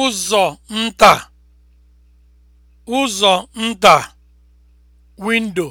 ụzọ nta ụzọ nta windo